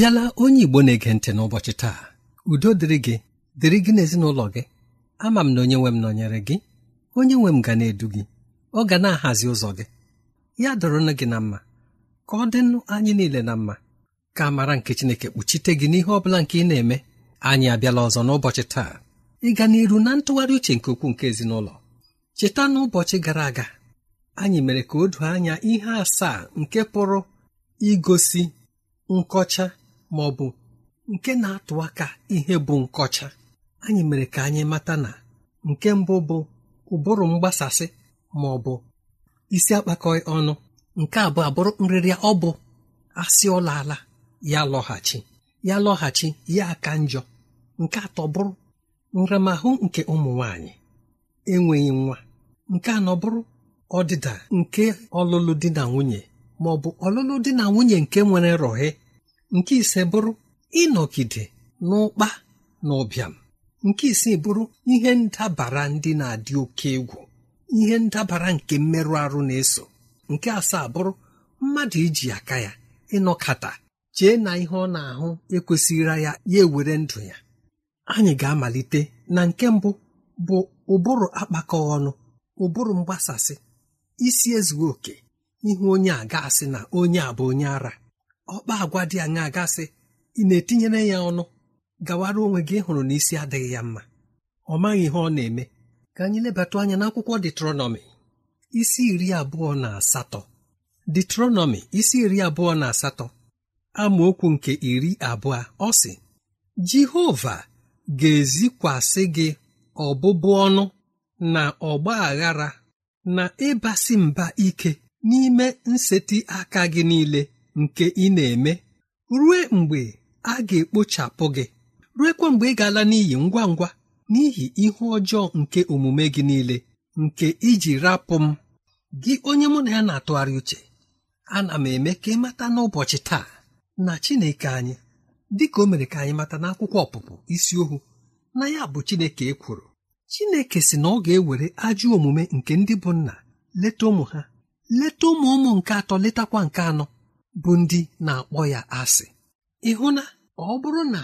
bịala onye Igbo na-ege ntị n'ụbọchị taa udo dịrị gị dịrị gị n'ezinụlọ gị ama m na onye nwe m nọnyere gị onye nwe m ga na-edu gị ọ ga na-ahazi ụzọ gị ya dọrọnụ gị na mma ka ọ dịnụ anyị niile na mma ka mara nke Chineke kpuchite gị n'ihe ọ bụla nke ị na-eme anyị abịala ọzọ n'ụbọchị taa Ị ịga n'iru na ntụgharị uche nke ukwuu nke ezinụlọ cheta n'ụbọchị gara aga anyị mere ka o du anya ihe asaa nke pụrụ igosi nkọcha ma ọ bụ nke na-atụ aka ihe bụ nkọcha anyị mere ka anyị mata na nke mbụ bụ ụbụrụ mgbasasị ma ọ bụ isi akpakọị ọnụ nke abụọ abụrụ nrịrịa ọ bụ asị ọla ala ya lọghachi ya lọghachi ya aka njọ nke atọ bụrụ nramahụ nke ụmụ nwanyị enweghị nwa nke anọ bụrụ ọdịda nke ọlụlụ di na nwunye ma ọ bụ ọlụlụ di na nwunye nke nwere rọhe nke ise bụrụ ịnọgide n'ụkpa na ụbịam nke isii bụrụ ihe ndabara ndị na-adị oke egwu ihe ndabara nke mmerụ arụ na-eso nke asaa bụrụ mmadụ iji aka ya ịnọkata chee na ihe ọ na-ahụ ekwesịrị ya ya ewere ndụ ya anyị ga-amalite na nke mbụ bụ ụbụrụ akpakọ ọnụ ụbụrụ mgbasasị isi ezughị oke ihe onye a ga-asị na onye a bụ onye ara ọkpa agwa dị anya gasị ị na-etinyere ya ọnụ gawara onwe gị hụrụ n'isi adịghị ya mma ọ maghị ihe ọ na-eme ka anyị lebata anya n'akwụkwọ detronọmi isi iri abụọ na asatọ detronọmi isi iri abụọ na asatọ amaokwu nke iri abụọ ọ sị jehova ga-ezikwasị gị ọbụbụ ọnụ na ọgba aghara na ịbasị mba ike n'ime nseti aka gị niile nke ị na-eme rue mgbe a ga-ekpochapụ gị ruekwa mgbe ị ga-ala n'iyi ngwa ngwa n'ihi ihe ọjọọ nke omume gị niile nke iji rapụ m gị onye mụ na ya na-atụgharị uche ana m eme ka ị mata n'ụbọchị taa na Chineke anyị dịka o mere ka anyị mata n'akwụkwọ ọpụpụ isi ohu na ya bụ Chineke ekworo Chineke si na ọ ga-ewere ajọ omume nke ndị bụ nna leta ụmụ ha leta ụmụ ụmụ nke atọ letakwa nke anọ bụ ndị na-akpọ ya asị ịhụ na ọ bụrụ na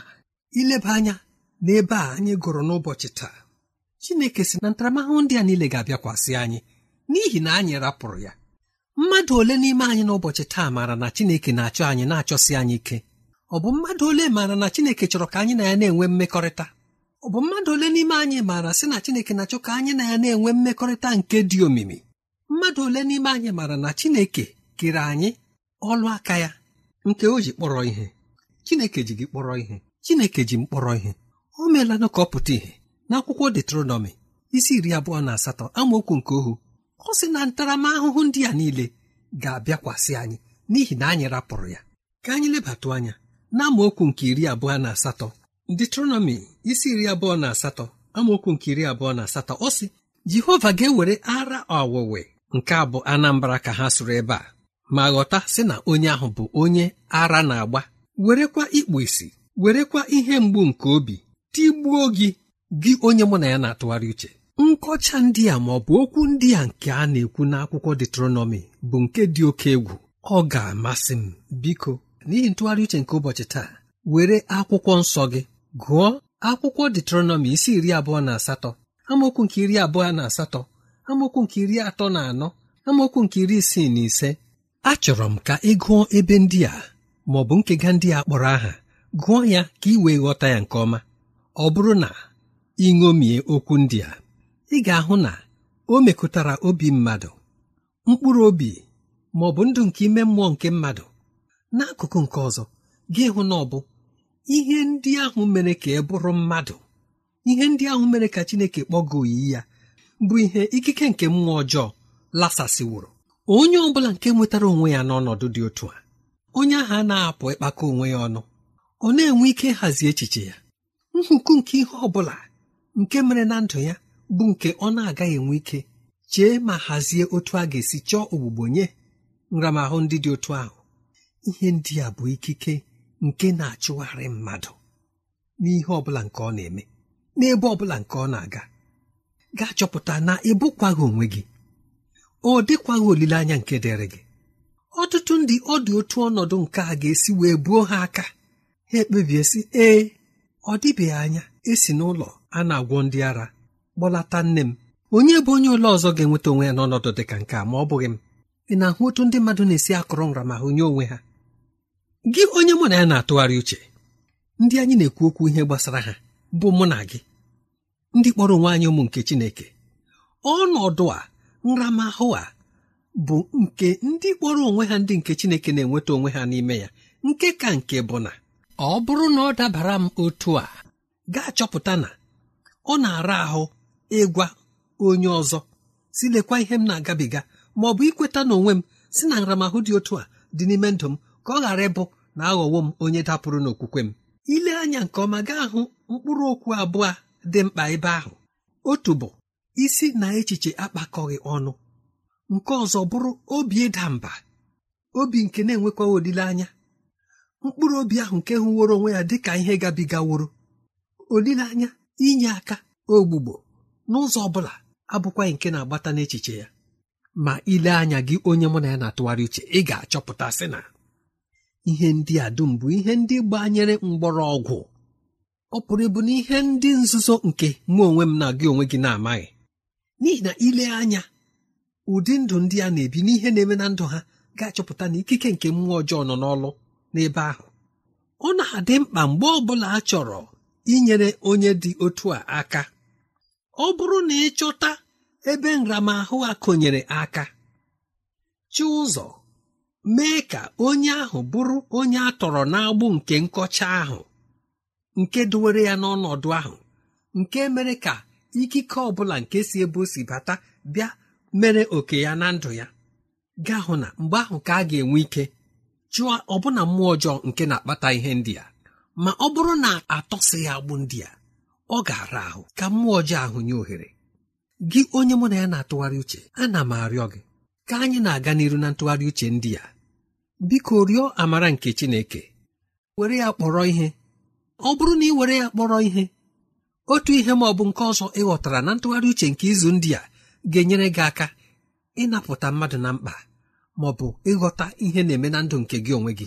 ileba anya n'ebe a anyị gụrụ n'ụbọchị taa Chineke si na ntaramahụhụ ndị a niile ga-abịakwasị anyị n'ihi na anyị rapụrụ ya mmadụ ole n'ime anyị n'ụbọchị taa maara na Chineke na-achọ anyị na-achọsi anyị ike ọ bụ mmadụ ole maara na Chineke chọrọ ka anyị na ya na-enwe mmekọrịta ọ bụ mmadụ ole n'ime anyị maara sị na Chineke na-achọ ka anyị na ya na-enwe mmekọrịta nke dị omimi mmadụ ole n'ime anyị maara na Chineke kere anyị ọlụ aka ya nke o ji kpọrọ ihe chineke ji gị kpọrọ ihe chineke ji m kpọrọ ihe o meela ka ọ pụta ihe n'akwụkwọ detronọmi isi iri abụọ na asatọ amaokwu nke ohu ọ sị na ntaramahụhụ ndị a niile ga-abịakwasị anyị n'ihi na anyị rapụrụ ya ka anyị lebatụ anya na amaokwu nke iri abụọ na asatọ detronọmi isi iri abụọ na asatọ amaokwu nke iri abụọ na asatọ ọ sị jehova ga-ewere ara ọwụwe nke abụ anambra ka ha sụrụ ebe a ma ghọta sị na onye ahụ bụ onye ara na-agba werekwa ikpu isi werekwa ihe mgbu nke obi tigbuo gị gị onye mụ na ya na-atụgharị uche nkọcha ndị a ma ọ bụ okwu ndị a nke a na-ekwu n'akwụkwọ detronọmi bụ nke dị oke egwu ọ ga-amasị m biko n'ihi ntụgharị uche nke ụbọchị taa were akwụkwọ nsọ gị gụọ akwụkwọ detronọmi isi iri abụọ na asatọ amaokwu nke iri abụọ na asatọ amaokwu nke iri atọ na anọ amaokwu nke iri isii na ise achọrọ m ka ị gụọ ebe ndị a ma ọ bụ nkega ndị a kpọrọ aha gụọ ya ka ị wee ghọta ya nke ọma ọ bụrụ na ị ṅomie okwu ndị a ị ga-ahụ na o mekụtara obi mmadụ mkpụrụ obi ma ọ bụ ndụ nke ime mmụọ nke mmadụ n'akụkụ nke ọzọ gị hụ na ọ bụ ihe ndị ahụ mere ka ị bụrụ mmadụ ihe ndị ahụ mere ka Chineke kpọgoo oyi ya bụ ihe ikike nke mmụọ ọjọọ lasasịwụrụ onye ọ bụla nke nwetara onwe ya n'ọnọdụ dị otu a onye ahụ a na-apụ ịkpakọ onwe ya ọnụ ọ na-enwe ike ịhazi echiche ya nhuku nke ihe ọ bụla nke mere na ndụ ya bụ nke ọ na-agaghị enwe ike chee ma hazie otu a ga-esi chọọ ogbugbo nye nramahụ ndị dị otu ahụ ihe ndị a bụ ikike nke na-achụgharị mmadụ n'ihe ọ bụla nke ọ na-eme n'ebe ọ bụla nke ọ na-aga gaa chọpụta na ịbụkwaghị onwe gị ọ dịkwaghị olileanya nke dịrị gị ọtụtụ ndị ọ dị otu ọnọdụ nke a ga-esi wee buo ha aka ha ekpebie sị ee ọ dịbeghị anya esi n'ụlọ a na-agwọ ndị ara kpọlata nne m onye bụ onye ụlọ ọzọ ga-enweta onwe ya n'ọnọdụ dị ka nke a ma ọ bụghị m ị na-ahụ otu ndị mmadụ na-esi akọrọ ma nye onwe ha gị onye mụ na ya na-atụgharị uche ndị anyị na-ekwu okwu ihe gbasara ha bụ mụ na gị ndị kpọrọ onwe anyị ụmụ nke Chineke ọnọdụ a nramahụ a bụ nke ndị kpọrọ onwe ha ndị nke chineke na-enweta onwe ha n'ime ya nke ka nke bụ na ọ bụrụ na ọ dabara m otu a gaa chọpụta na ọ na-ara ahụ ịgwa onye ọzọ si lekwa ihe m na-agabiga ma ọ bụ ikweta na onwe m si na nramahụ dị otu a dị n'ime ndụ m ka ọ ghara ịbụ na aghọwo m onye dapụrụ n'okwukwe m ile anya nke ọma gaa hụ mkpụrụ okwu abụọ dị mkpa ebe ahụ otu bụ isi na echiche akpakọghị ọnụ nke ọzọ bụrụ obi ịda mba obi nke na-enwekwaghị olileanya mkpụrụ obi ahụ nke hụworo onwe ya dị ka ihe gabigaworo olileanya inye aka ogbugbo n'ụzọ ọ bụla abụkwaghị nke na-agbata n'echiche ya ma ile anya gị onye mụ na ya na-atụgharị uche ị ga-achọpụta sị na ihe ndị a dum bụ ihe ndị gbanyere mgbọrọgwụ ọ pụrụ ịbụ na ihe ndị nzuzo nke mụ onwe m na gị onwe gị na-amaghị n'ihi na ile anya ụdị ndụ ndị a na-ebi n'ihe na-eme na ndụ ha ga-achọpụta na ikike nke mmụọ ọjọọ nọ n'ọlụ n'ebe ahụ ọ na-adị mkpa mgbe ọ bụla a chọrọ inyere onye dị otu a aka ọ bụrụ na ịchọta ebe nramahụ a konyere aka chi ụzọ mee ka onye ahụ bụrụ onye a tọrọ n'agbụ nke nkọcha ahụ nke duwere ya n'ọnọdụ ahụ nke mere ka ikike ọ bụla nke si ebe o si bata bịa mere oke ya na ndụ ya gaa hụ na mgbe ahụ ka a ga-enwe ike chụọ ọbụna mmụọ ọjọọ nke na-akpata ihe ndị a ma ọ bụrụ na atọsị ya agbụ ndị a ọ ga-ara ahụ ka mmụọ ọjọọ ahụ nye ohere gị onye mụ na ya na-atụgharị uche ana m arịọ gị ka anyị na-aga n'iru na ntụgharị uche ndị a biko rịọ amara nke Chineke were ya kpọrọ ihe ọ bụrụ na ị were ya kpọrọ ihe otu ihe ma ọ bụ nke ọzọ ịghọtara na ntụgharị uche nke izu ndị a ga-enyere gị aka ịnapụta mmadụ na mkpa ma ọ bụ ịghọta ihe na-eme na ndụ nke gị onwe gị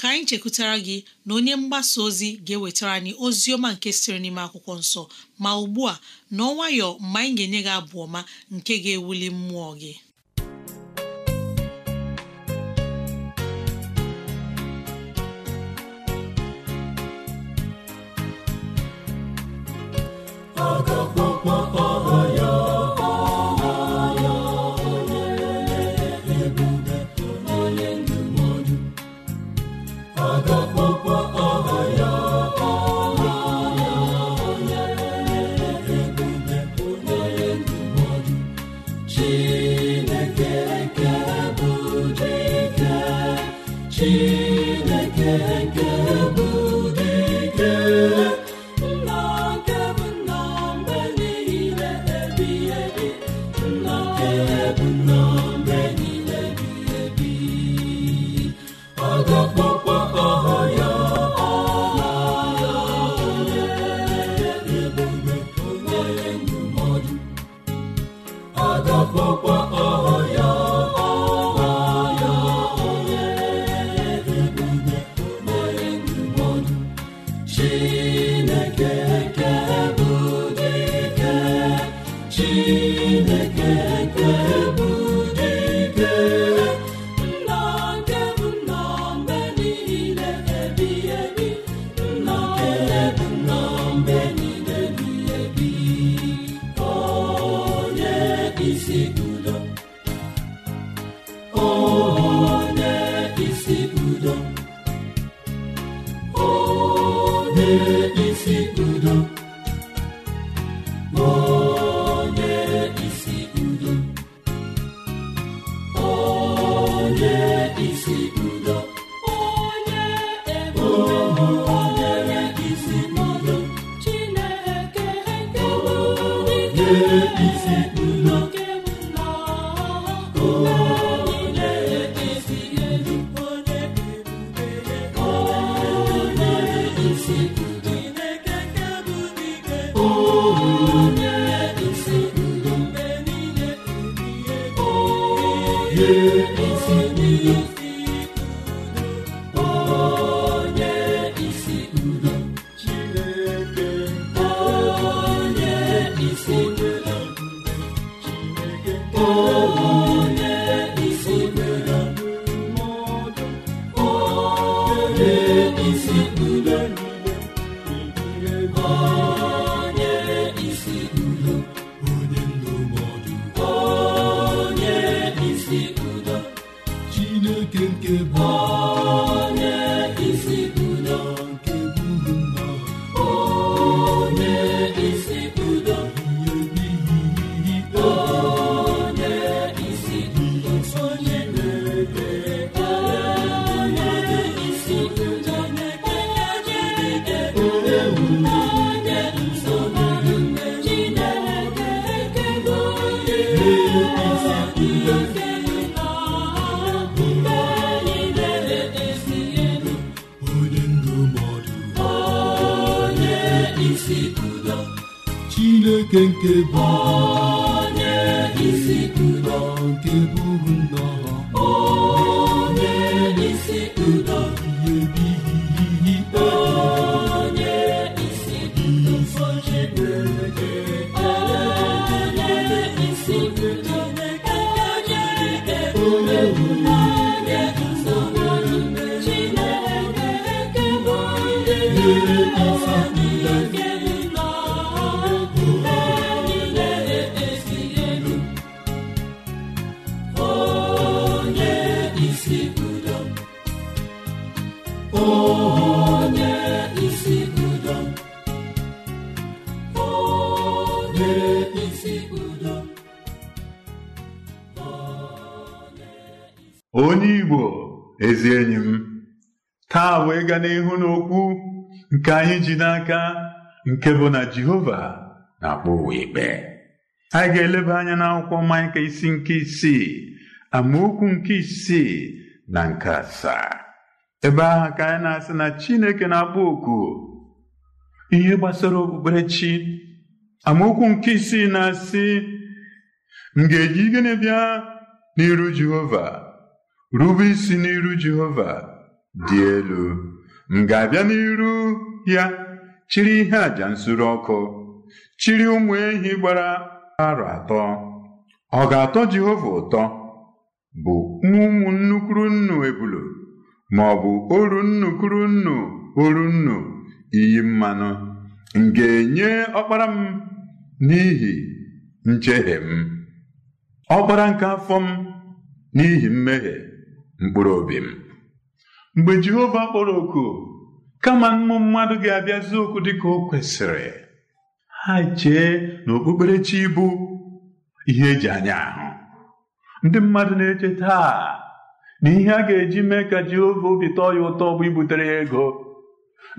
ka anyị chekwutara gị na onye mgbasa ozi ga-ewetara anyị ozi ọma nke siri n'ime akwụkwọ nsọ ma ugbu a n'ọnwayọ mgbe anyị ga-enye gị abụ ọma nke ga-ewuli mmụọ gị Kenke nke bụ onye isi nke isi nnọọ onye isi udo ihe isi ikpe onye isi udo nsọ Chineke onye isi udo onye onye bụ onye isi n'ihu n'okwu nke anyị ji n'aka nke bụ na Jehova na-akpọ ụwa ikpe anyị ga-eleba anya n'akwụkwọ Maịka isi nke isii amaokwu nke isii na nke asaa ebe ahụ ka anyị na-asị na Chineke na-akpọ oku ihe gbasara okpukperechi amaokwu nke isii na-asị m ga-eji gịnị bịa n'iru Jehova rube isi n'iru Jehova dị elu m ga-abịa n'iru ya chiri ihe àjà nsuru ọkụ chiri ụmụ ehi gbara arọ atọ ọ ga-atọ Jehova ụtọ bụ ụmụ nnukwu nnu ebulu ma ọ bụ oru nnukwu nnu oru nnu iyi mmanụ m ga-enye ọkpara m n'ihi njehie m ọkpara nke afọ m n'ihi mmehie mkpụrụ obi m mgbe Jehova kpọrọ oku kama mmụ mmadụ ga-abịazi okwu dịka o kwesịrị ha chee na okpukperechi bụ ihe eji anya ahụ ndị mmadụ na-eche taa na ihe a ga-eji mee ka Jehova obi tọọ ya ụtọ bụ ibutere ya ego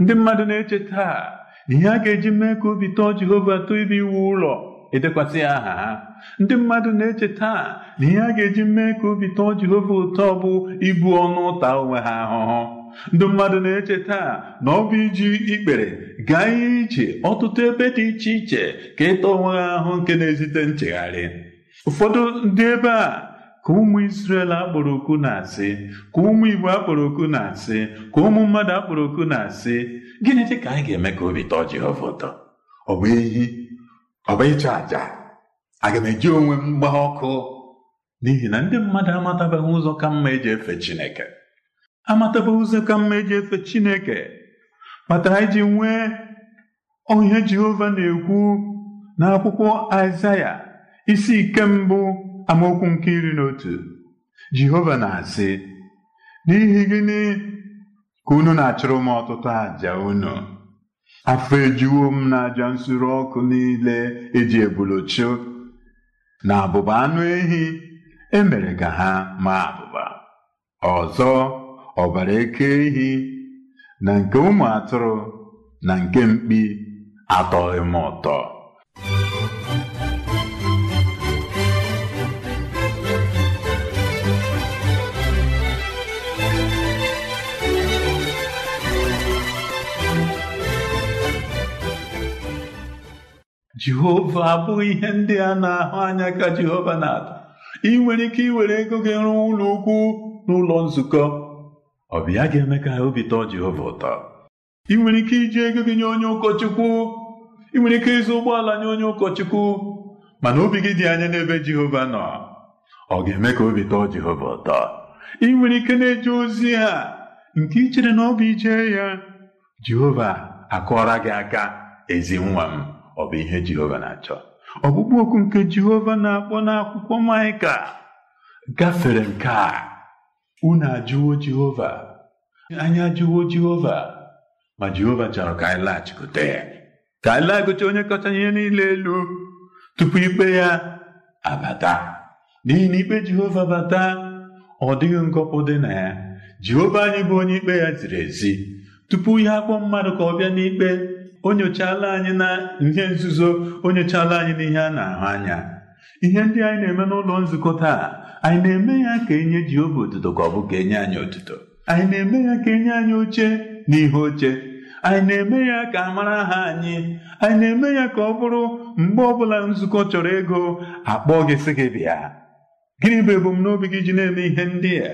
ndị mmadụ na-eche taa na ihe a ga-eji mee ka obi tọọ Jehova tọọ ibe iwu ụlọ edekwasị aha ha ndị mmadụ na-eche taa na ihe a ga-eji mee ka obi tọọ Jehova ụtọ bụ ibu ọnụ ụta onwe ha ahụhụ ndị mmadụ na-eche taa na ọ bụ iji ikpere gaa ihe ije ọtụtụ ebe dị iche iche ka ịta onwe ha ahụ nke na-ezite nchegharị ụfọdụ ndị ebe a ka ụmụ Israel akpọrọ okwu na-asị ka ụmụ Igbo akpọrọ okwu na-asị ka ụmụ mmadụ akpọrọ okwu na-asị gịnị dị ka anyị ga-eme ka obi tọọ Jehova ụtọ ọ bụ ehi ọ bụ ịchụ àjà aga m eji onwe m mgba ọkụ n'ihi na ndị mmadụ amatabeghị ụzọ ka mma eji efe Chineke amatabeghị ụzọ ka mma eji efe Chineke kpatara iji nwee onye Jehova na-ekwu n'akwụkwọ Aịzaya isi ike mbụ amaokwu nke iri na otu Jehova na-asị n'ihi gịnị ka unu na-achụrụ m ọtụtụ àjà unu afọ ejuwo m na aja nsure ọkụ niile eji ebulochio na abụba anụ ehi emere ka ha maa abụba ọzọ ọbara eke ehi na nke ụmụ atụrụ na nke mkpi atọghị m ụtọ jehova abụghị ihe ndị a na-ahụ anya ka jehova na-atọ ị nwere ike iwere ego gị rụọ ụlọ ukwu n'ụlọ nzukọ ọ ga-eme ka obi tọọ jehova ụtọ ị nwere ike iji ego gị nye onye ụkọchukwu ị nwere ike ịzụ ụgbọala nye onye ụkọchukwu mana obi gị dị anya n'ebe jehova nọ ọ ga-eme ka obi tọọ jehova ụtọ ị nwere ike na-eje ozi ha nke ichere na ọ bụ ije ya jehova akụọra gị aka ezi nwa m ọ bụ ihe Jehova na-achọ ọkpụkpụ okwu nke Jehova na-akpọ n'akwụkwọ Maịka gafere nke a unu ajụwo Jehova anyị ajụwo Jehova ma Jehova chọrọ ka anyị laghachikwute ya ka anyị laghachikwute onye kacha ihe niile elu tupu ikpe ya abata n'ihi na ikpe Jehova bata ọ dịghị ngọpụ dị na ya Jehova anyị bụ onye ikpe ya ziri ezi tupu ya akpọ mmadụ ka ọ bịa n'ikpe o nyochala anyị na ihe nzuzo o nyochala anyị n'ihe a na-ahụ anya ihe ndị anyị na-eme n'ụlọ nzukọ taa anyị na-eme ya ka enye Jehova otuto ka ọ bụ ka enye anyị otuto anyị na-eme ya ka enye anyị oche na ihe oche anyị na-eme ya ka a mara aha anyị anyị na-eme ya ka ọ bụrụ mgbe ọbụla nzukọ chọrọ ego akpọ gị sị gị bịa gịnị bụ ebumnobi gị ji na-eme ihe ndị a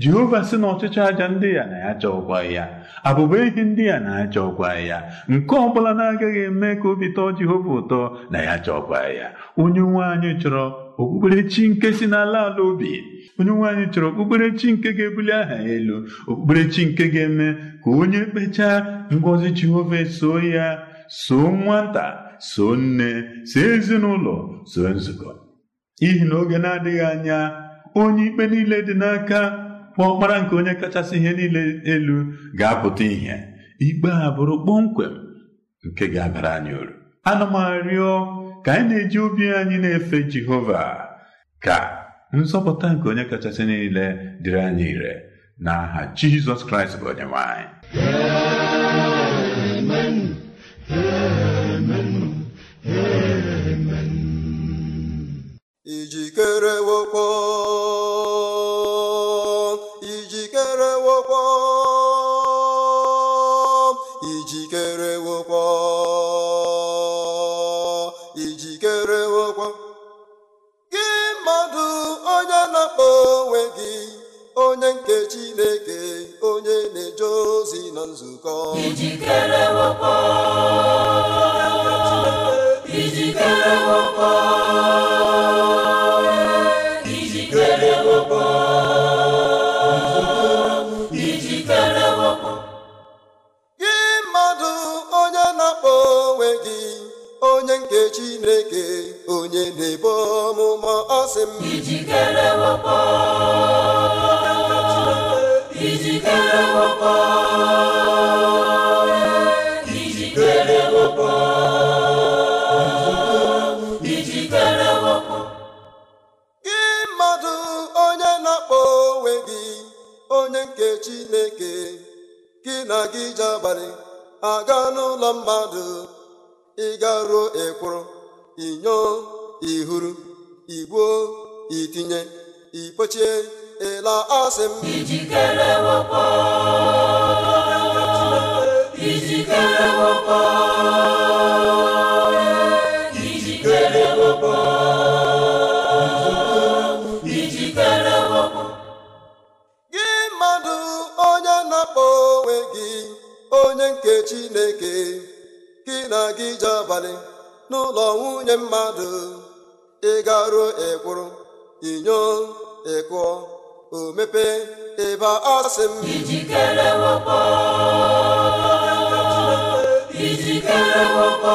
jehova sị na ọchịchọ aja ndị a na ya ụgwọ ya abụba ihe ndị a na-aja ụgwọ ya nke ọ bụla na-agaghị eme ka obi tọọ jehova ụtọ na ya aja ya onye nwe anyị chọrọ okpukperechi nke si n'ala ala obi onye nwe anyị chọrọ okpukperechi nke ga-ebuli aha ya elu okpukperechi nke ga-eme ka onye kpechaa ngọzi jehova soo ya soo nwata so nne so ezinụlọ so nzukọ n'ihi na oge na-adịghị anya onye ikpe niile dị n'aka ọ ọkpara nke onye kachasị ihe niile elu ga-apụta ihe ikpe a bụrụ kpọmkwem nke ga-abara anyị uru ana m arịọ ka anyị na-eji obi anyị na-efe Jehova ka nzọpụta nke onye kachasị niile dịrị anyị ire n'aha Jizọs Kraịst bụ onye Chineke onye na-eje ozi na nzukọ gị mmadụ onye na-akpọ onwe gị onye nke Chineke onye na ebe ọmụma ọsị m ijikere wepọ ijikere wepụ ijikere gị mmadụ onye na-akpọ onwe gị onye nke Chineke gị na gị ji abalị aga n'ụlọ mmadụ ịgaruo ịkpụrụ, inyo ihuru igbuo itinye ikpochie ịla asị m ijikere gị mmadụ onye na-akpọ onwe gị onye nke Chineke gị na gị je abalị n'ụlọ nwunye mmadụ ị garuo ịkwụrụ inyo ịkụọ o mepee ịba ọsị sị m ijikere wakpo ijikere wakpo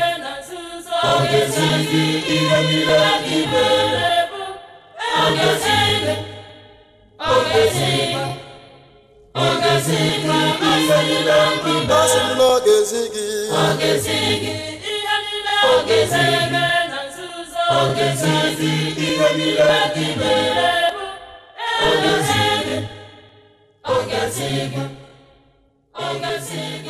ọ ga-ezi ihe niile anyị mere ọ ga-ezi ọ ga-ezi ọ ga Ogezi ihe ọ ga Ihe ọ ga ihe ọ ga ihe! ọ ihe ọ ga ọ ga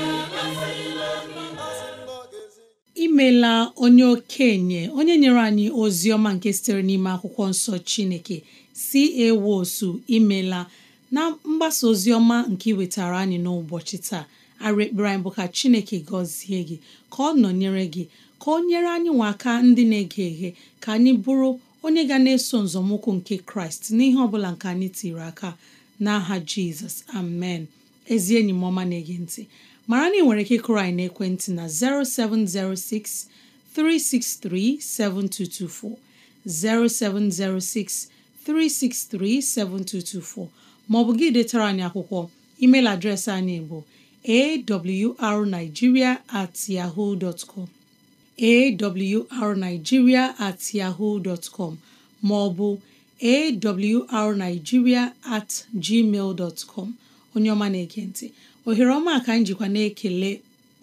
imela onye okenye onye nyere anyị ozi ọma nke sitere n'ime akwụkwọ nsọ chineke si ewosu imela na mgbasa ozi ọma nke iwetara anyị n'ụbọchị taa arụ ekpere anyị bụ ka chineke gọzie gị ka ọ nọnyere gị ka ọ nyere anyị nwa aka ndị na-ege eghe ka anyị bụrụ onye ga na-eso nzọmụkwụ nke kraịst n'ihe ọ bụla nke anyị tiri aka n'aha jizọs amen ezi enyi m ọma na-ege ntị mara na ị nwere ike ịkụrụ anyị n'ekwentị na 0706 363 7224 0706 363 7224 ma ọ bụ gị detara anyị akwụkwọ email adreesị anyị bụ awrnigeria at yahoo dot com awrnigeria at yahoo dot com maọbụ awrnigeria at gmail dot com onye ọma na-ekentị ohere ọma ka njikwa na-ekele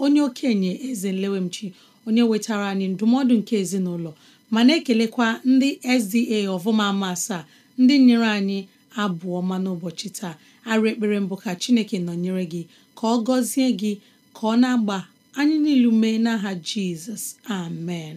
onye okenye eze nlewemchi onye wetara anyị ndụmọdụ nke ezinụlọ ma na-ekelekwa ndị SDA ọvụma ama asaa ndị nyere anyị abụọ ọma n'ụbọchị taa arụ ekpere mbụ ka Chineke nọnyere gị ka ọ gọzie gị ka ọ na-agba anyị niilu mee n'aha Jizọs amen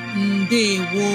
ndewo